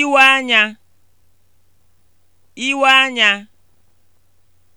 iwe anya iwe anya